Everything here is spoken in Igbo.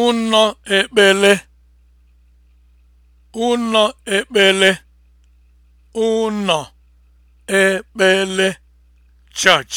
ụnọ ekpele ụnọ ekpele ụnọ ekpele church